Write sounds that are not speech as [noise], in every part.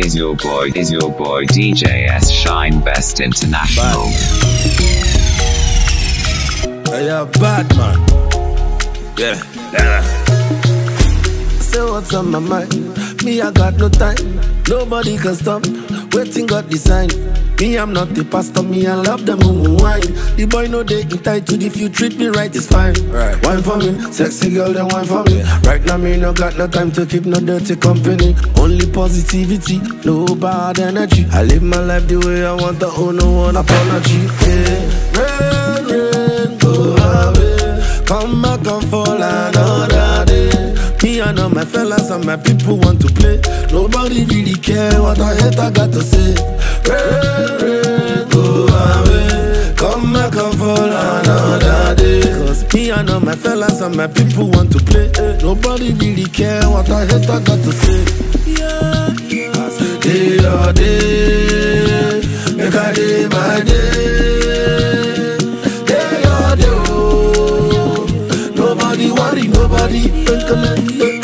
is your boy, is your boy DJS Shine Best International. Bad. Hey, yeah, bad man. Yeah. yeah what's on my mind. Me, I got no time. Nobody can stop. Waiting got design. Me, I'm not the pastor, me, I love them who wine. The boy know they entitled if you treat me right, it's fine. Right. Wine for me, sexy girl, then wine for me. Right now, me no got no time to keep no dirty company. Only positivity, no bad energy. I live my life the way I want, I owe no one apology. Yeah. Rain, rain, go away. Come back. My fellas and my people want to play. Nobody really care what I hate, I got to say. Pray, pray, go away. Come back and fall another day. Cause me and all my fellas and my people want to play. Nobody really care what I hate, I got to say. Yeah, yeah. Day or day, make a day by day. Oh. nobody worry, nobody. Yeah.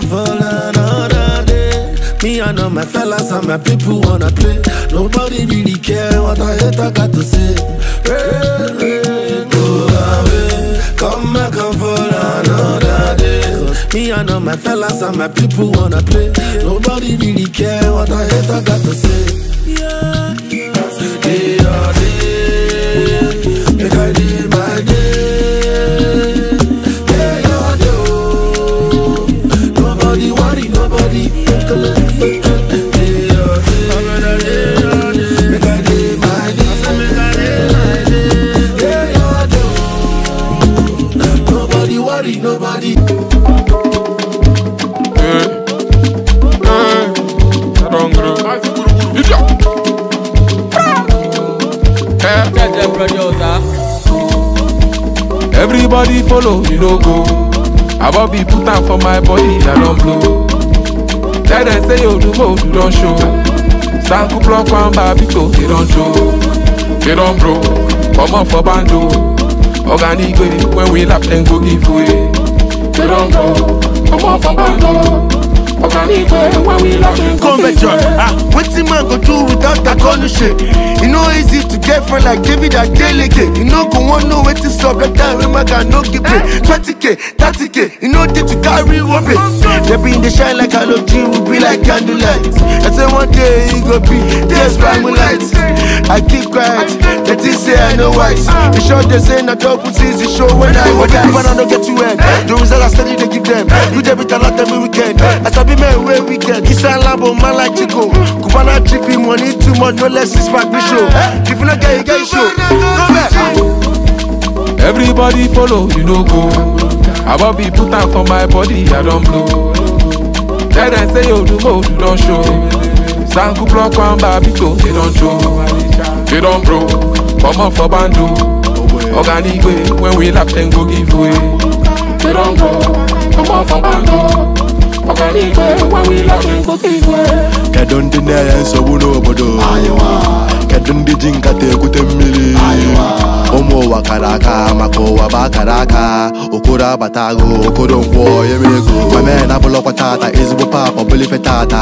don't fall another day. Me and all my fellas and my people wanna play. Nobody really care what I hate, I got to say. Rain, rain, go away. Come back and fall another day. Me and all my fellas and my people wanna play. Nobody really care what I hate, I got to say. yeah. yeah. no, you no go. I won't be put out for my body, I don't blow. Tell them say you oh, do more, you don't show. Sanku block one by people, they don't show. They don't blow. Come on for bando. Organic way, when we lap, then go give way. They don't go. Come on for bando. Convention, ah, wetin man go do without a shit. E no easy to get friend like David Adeleke. You no go wan know wetin sup that time wey man no give pay. Twenty k thirty k e no dey to carry one pay. They been dey shine like halogen, we be like candlelight. I say one day e go be this by moonlight. I keep quiet, they think say I no wise. The sure they say na double season show when I was. But the people I no get to end. The results I steady dey give them. You dey with a every weekend. I sabi Only men we get. This labo oh, man Chico. Cubana trippy money too much. No less is back show. Eh? If you not get, you get show. Go back. Everybody follow, you know go. I won't be put out for my body, I don't blow. Then I say, oh, do more, you don't show. Sanku block one babito, they don't show. They don't bro, come on for bandu. Organic way, when we lap, then go give way. They don't go, come on for bandu. kedụndị na-enye nsogbu n'obodo kedụ ndị ji nkata ekwute mmiri ụmụ ụwa kara aka maka ụwa bụ akara aka okoro abatago agụ okoro nkwọ ya ego mame na abụlọkwa ezigbo pap ọbụlife tata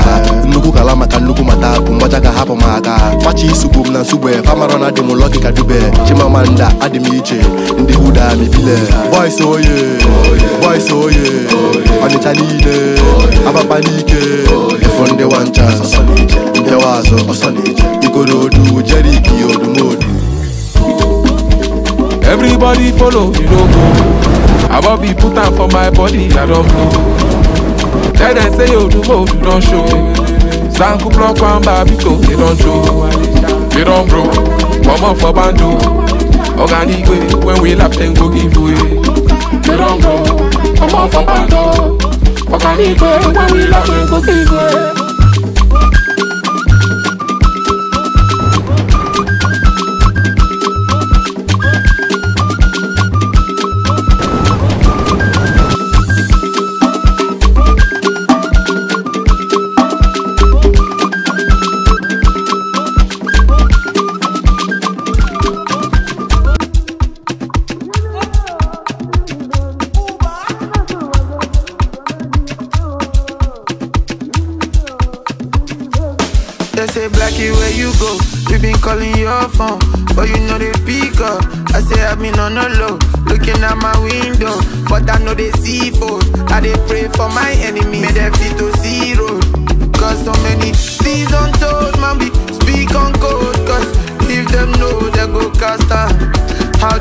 nnukwu kala maka nnukwu mata bụ ka hapụ m aka facha isugbu m na nsugbe famara na adị m ka dube chimamanda adị m oye everybody follow you no go i wan be put am for my body i don blow tell dem say yo, oh, odumo you don show zanku block one bar biko they don show they don bro comot for bando oga nigwe when we lap dem go give way they don bro comot for bando oga nigwe when we lap dem go give way. see foes. I they pray for my enemies. May them see to zero. Cause so many things untold, man, be speak on code. Cause if them know, they go cast out. How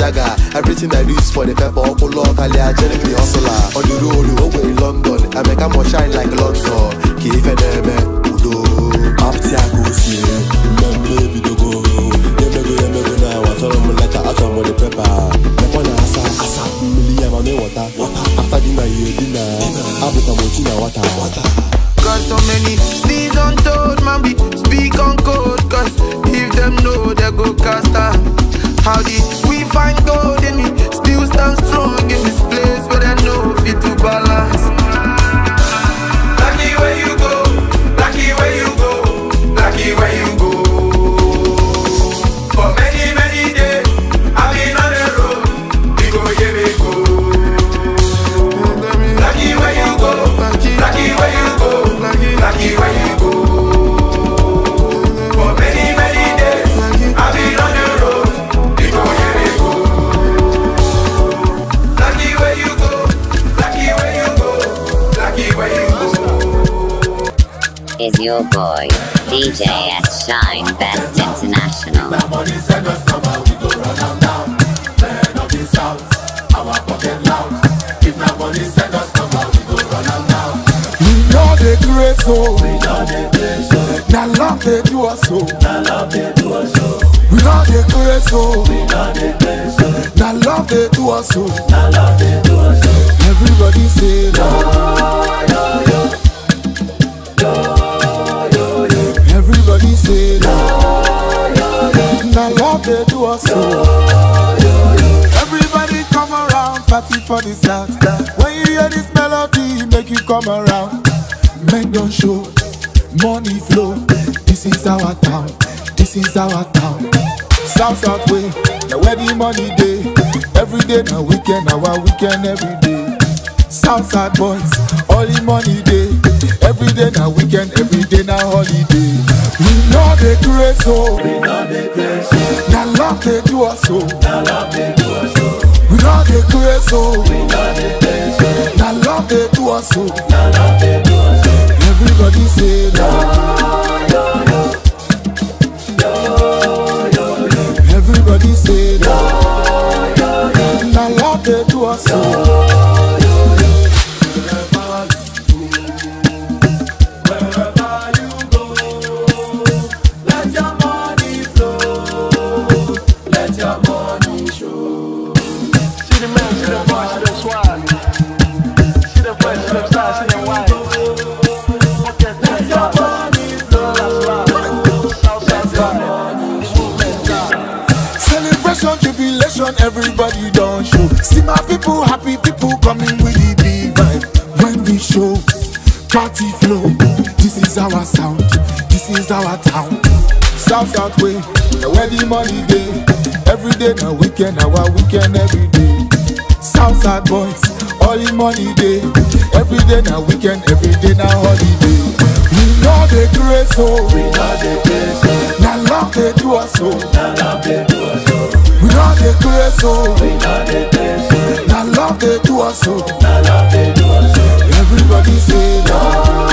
Yaga. Everything I do is for the pepper, Okolo, Kale, Ajeni, Hustler. On the road, over in London, I make a more shine like London. Kifeneme, Udo, Aptiago, Sire. Little Boy, DJ at Shine Best International. We know so. We know the Now love they do us so. Now love they do us so. We know the grace so. We know the great so. Now love they do us so. Now love they do us so. Everybody say no, no, no. say no. Now love they do us so. Everybody come around, party for this out. When you hear this melody, make you come around. Men don't show, money flow. This is our town, this is our town. South South way, now where the money day. Every day now weekend, our weekend every day. South South boys, all the money day. Every day now weekend, every day now holiday. We know the grace, so we know the grace, so that love they do us so. That love they do us so. We know the grace, so we know the grace, so that love they do us so. That love they do us so. Everybody say no, no, no, no, no, Everybody say no, no, no, that love they do us so. No. show, party flow. This is our sound, this is our town. South South way, the wedding money day. Every day na weekend, our weekend every day. South South boys, all in money day. Every day na weekend, every day na holiday. We know the grace, oh. We know the grace, oh. Na love they do us, so. Na love they do us, oh. We know the grace, oh. We know the grace, oh. Na love they do us, oh. Na love they do us, oh. everybody say no.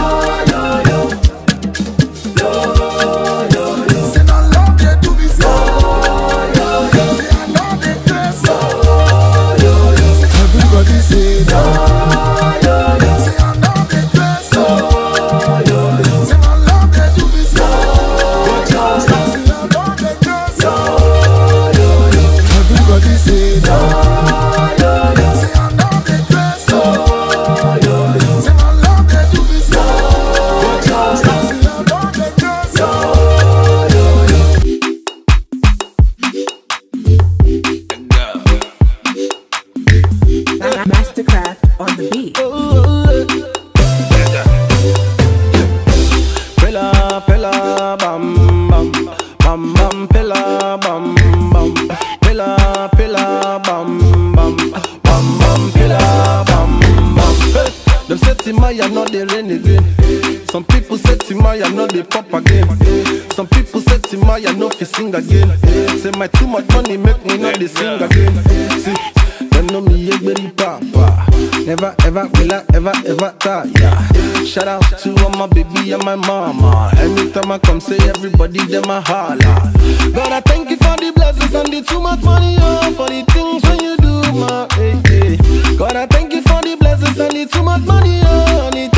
I no fi sing again. say my too much money make me not dey sing again. Hey, see, them know me yegberi papa. Never ever will I ever ever tire. Yeah. Shout out to all my baby and my mama. Anytime I come, say everybody them a holla. God, I thank you for the blessings and the too much money, oh, for the things when you do, my. Hey, eh, eh. hey. God, I thank you for the blessings and the too much money, oh, and the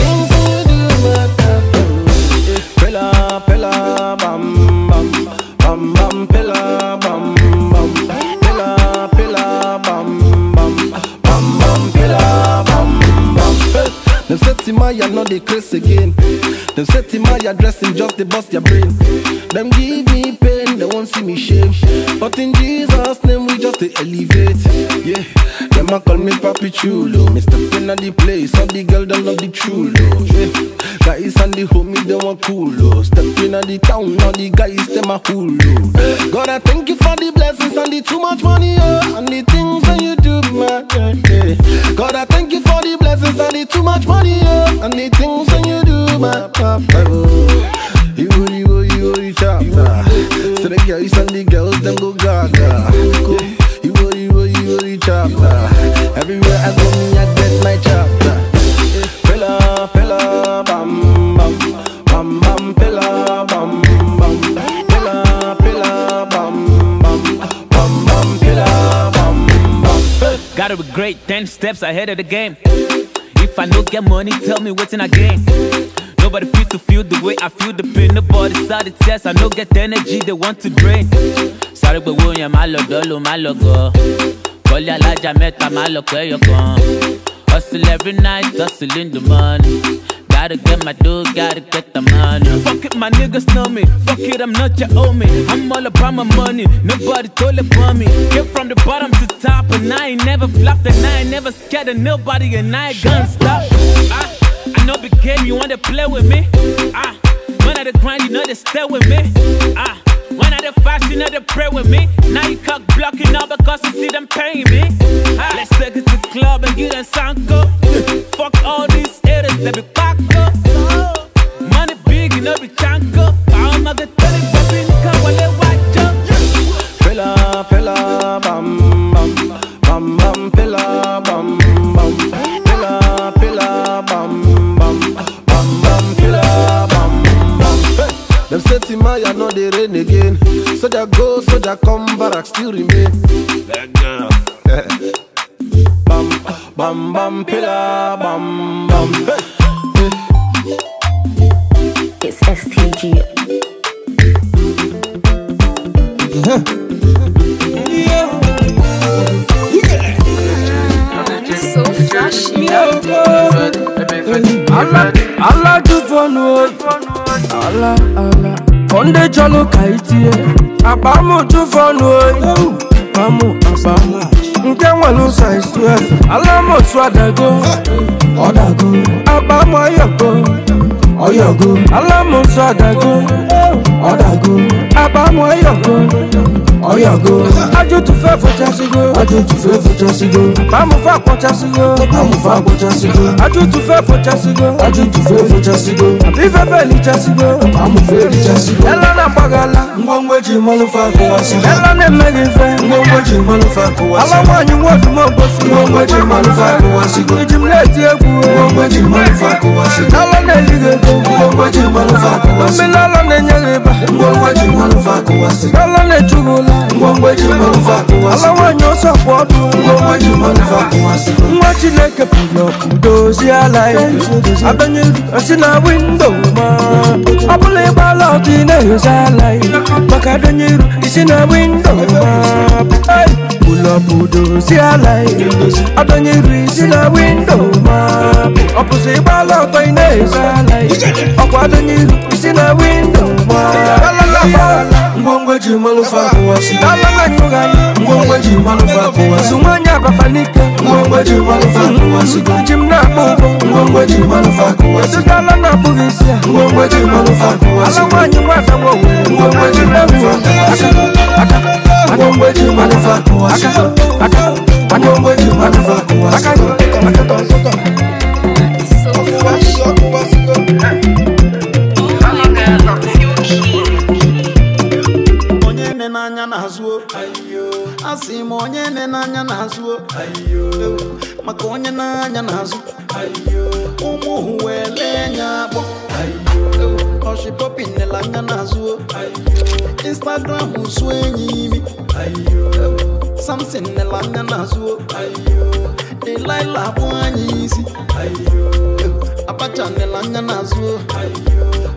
Jeremiah, not the curse again. Them set him my address him just to bust your brain. Them give me pain, they won't see me shame. But in Jesus' name we just elevate. Yeah. Them a call me papi chulo Me step in the place All the girls them love the chulo Guys and the homie them a coolo Step in the town All the guys them a hulu God I thank you for the blessings And the too much money oh, And the things that you do man yeah. God I thank you for the blessings And the too much money oh, And the things that you do my You, you, you, you, the girls them go gaga. You, you, you, you, you, Everywhere I go, me I get my chapter. Pilla, pilla, bam, bam, bam, bam, pilla, bam, bam, pilla, pilla, bam, bam, bam, bam, pilla, bam, bam. Gotta be great, ten steps ahead of the game. If I don't get money, tell me what's in a game. Nobody feel to feel the way I feel the pain. Nobody side the test. I no get the energy they want to drain. Sorry, but William, I love, I love, I Wọlé met mẹ́ta máa Look where you kan. Hustle every night, hustle in the morning. Gotta get my dough, gotta get the money. Fuck it, my niggas know me. Fuck it, I'm not your homie. I'm all about my money. Nobody told it for me. Get from the bottom to top, and I ain't never flopped, and I ain't never scared of nobody, and I ain't gonna stop. I, ah, I know the game, you wanna play with me? Ah, when I the grind, you know they stay with me. Ah. When I the fasting of the prayer with me, now you cock blocking all because you see them paying me. Ah, let's take it to the club and get a sanko. [laughs] Fuck all these haters, let me back up. come back, still remain That girl Bam, bam, bam, pillar, bam, bam It's STG So flashy Allah, Allah do for no Allah, Allah Sunday Jalo Kaitie Abamu to Fono Abamu e. Abamu Nke wanu size 12 Alamo Swadago Odago Abamu Oyogo Oyogo Alamo Swadago ọ̀dàgó àbámọ̀ ọ̀yọ̀gó ọ̀yọ̀gó ajútùfẹ́ fòjásígó ajútùfẹ́ fòjásígó àbámọ̀ fàkọ̀jásígó àbámọ̀ fàkọ̀jásígó ajútùfẹ́ fòjásígó ajútùfẹ́ fòjásígó àbífẹ́fẹ́ lìjásígó àbámọ̀ fẹ́ lìjásígó ẹlọ́nà pàgàlà ngwongweji mọ́lúfà kò wá sí ẹlọ́nà mẹ́rìnfẹ́ ngwongweji mọ́lúfà kò wá sí alámọ̀nyí wọ́ọ̀dù mọ́gbọ́sí ngwongweji mọ́lúfà kò wá sí ìjìmlẹ̀ ti egwu ngwongweji mọ́lúfà kò wá sí ẹlọ́nà èlìgẹ̀gẹ̀ ngwongweji mọ́lúfà kò wá sí ọmọ ìlọ́lọ́ na-enye rẹ̀ baba ngwangwa kuwasi kalane jubula ngwangwa ji mwaluva kuwasi ala wanyo kuwasi nwa chineke pụrụ ọkụ dozie ala ya ma ọbụla ịgbala ọdụ ị na-ehozi pull up do see a light. I don't need reach in a window, ma. Opposite ball out by Nesa light. I don't need reach in a window, ma. ngongwejimalufakuwasidalanaugaiongwejimalufakuwasumanyakwafanike ngongwejimalufakuwasugujimnabugo mm-hmm. ngongwejimalufakuwasidalanabugisia ngongwejimalufakuwasalamanyimatamowe ngongwejimalufakuwasi Manyongwe juu manufaa kuwasha Onye nenanya na-azụ Asị Maka onye na-anya na-azụ Ụmụ hụ akpọ Ọshị popin anya na-azụ Instagram sụ enyi imi ayo samson nela anya na-azụ ayo ilaila bụ anyị isi ayo abacha nela anya na-azụ ayo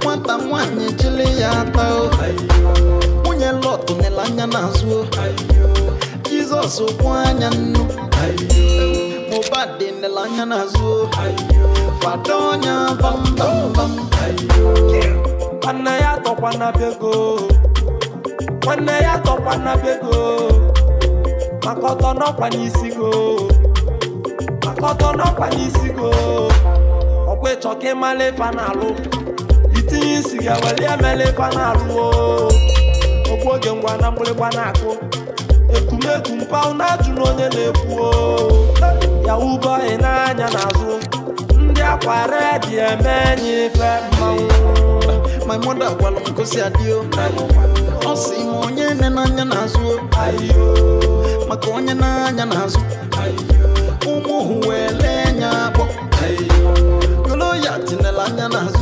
nwata nwanyị chili ya ata ayo nwunye lot nela anya na-azụ ayo jizọs kwụ anya nnu ayo mobad nela anya na-azụ ayo fado anya bambambam ayo nna ya tọkwa na bego nwanne ya tọkwana be go maka ọtọ n'ọkwa n'isi go maka ọtọ n'ọkwa n'isi go ọkwa ịchọ ka ịmala ife na-alụ itinye isi ga weli emela ife n'alụ alụ okwu oge ngwa na mgbịrịgba na-akụ ekumekwu mpa na-ajụ na onye na-ekwu yahu bọyị n'anya n'azụ ndị akwara dị eme enyi ife mmanwụ my mother gwara m gosi adịo Simonye ma onye nne n'anya na-azụ maka onye n'anya na-azụ ụmụ hụ wee lee ya tinela anya